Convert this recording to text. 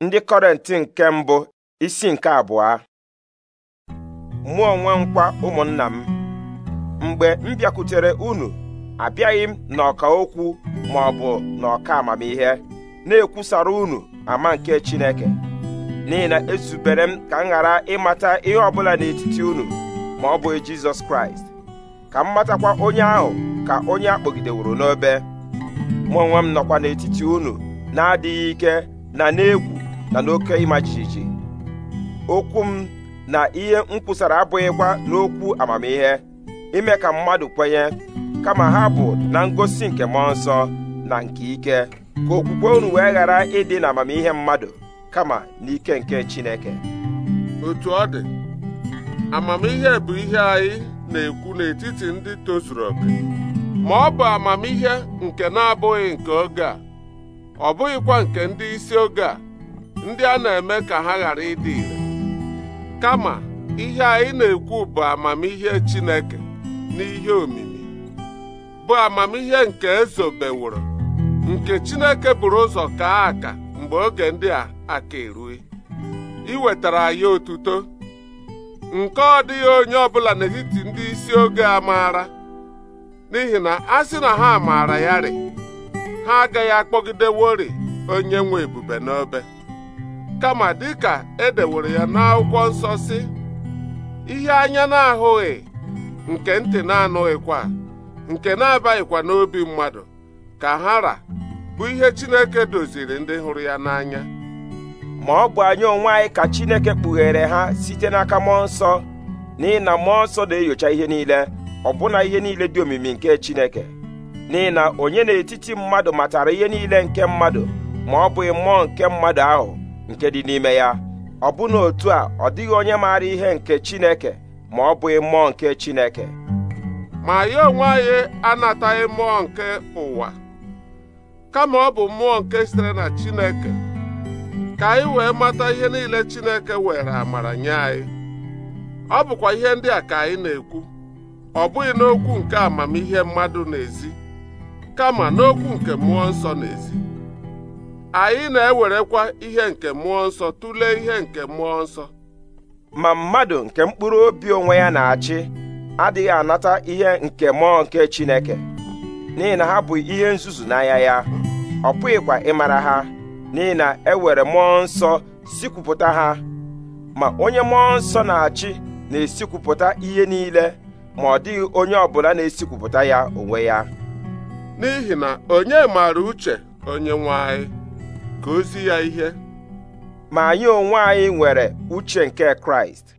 ndị kọrenti nke mbụ isi nke abụọ mụ onwe nkwa ụmụnna m mgbe m bịakwutere unu abịaghị m n'ọka okwu ma ọ bụ n'ọka amamihe na-ekwusara unu ama nke Chineke n'ihi na ezubere m ka m ghara ịmata ihe ọbụla n'etiti unu ma ọ bụghị Jizọs Kraịst ka m matakwa onye ahụ ka onye akpọgideworo n'obe mụ onwe m nọkwa n'etiti unu na-adịghị ike na n'egwu na n'oke ịma jijiji okwu m na ihe m kwusara abụghịkwa n'okwu amamihe ime ka mmadụ kwenye kama ha bụ na ngosi nke mmụọ nsọ na nke ike ka okwukwe unu wee ghara ịdị na amamihe mmadụ kama n'ike nke Chineke otu ọ dị amamihe bụ ihe anyị na-ekwu n'etiti ndị tozuru oke ma ọ bụ amamihe nke na-abụghị nke oge a ọ bụghịkwa nke ndị isi oge a ndị a na-eme ka ha ghara ịdị ire kama ihe anyị na-ekwu bụ amamihe Chineke n'ihe omimi bụ amamihe nke ezobeworo nke Chineke buru ụzọ kaa aka mgbe oge ndị a aka erue iwetara anyị otuto nke ọ dịghị onye ọbụla n'etiti ndị isi oge a maara n'ihi na a sị na ha maara ya ha agaghị akpọgidewori onye nwe ebube n'obe kama dịka e dewere ya n'akwụkwọ nsọ si ihe anya na-ahụghị nke ntị na-anụghịkwa nke na-abaghịkwa n'obi mmadụ ka hara bụ ihe Chineke doziri ndị hụrụ ya n'anya ma ọ bụ anya onwe anyị ka Chineke kpughere ha site n'aka mmụọ nsọ n'ihi na mmụọ nsọ na-enyocha ihe niile ọbụna ihe niile dị omimi nke Chineke n'ihi na onye n'etiti mmadụ matara ihe niile nke mmadụ ma ọ bụghị mmụọ nke mmadụ ahụ nke dị n'ime ya ọ bụ na otu a ọ dịghị onye maara ihe nke Chineke ma ọ bụghị mmụọ nke Chineke ma ya onwe anyị anataghị mmụọ nke ụwa kama ọ bụ mmụọ nke sitere na Chineke ka anyị wee mata ihe niile Chineke were amara nye anyị ọ bụkwa ihe ndị a ka anyị na-ekwu ọ bụghị n'okwu nke amamihe mmadụ n'ezi kama n'okwu nke mmụọ nsọ n'ezi anyị na-ewerekwa ihe nke mmụọ nsọ tụlee ihe nke mmụọ nsọ ma mmadụ nke mkpụrụ obi onwe ya na-achị adịghị anata ihe nke mmụọ nke Chineke n'ihi na ha bụ ihe nzuzu n'anya ya ọ pụghịkwa ịmara ha n'ihi na ewere mmụọ nsọ sikwupụta ha ma onye mmụọ nsọ na-achị na-esikwupụta ihe niile ma ọ dịghị onye ọbụla na-esikwupụta ya onwe ya n'ihi na onye maara uche onye nwe anyị ka ozi ya ihe ma anyị onwe anyị nwere uche nke Kraịst